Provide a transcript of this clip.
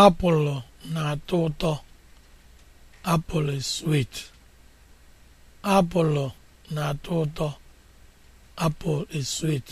apụlụ na-atọ ụtọ apụl is sweet apụlụ na-atọ ụtọ apụl is sweet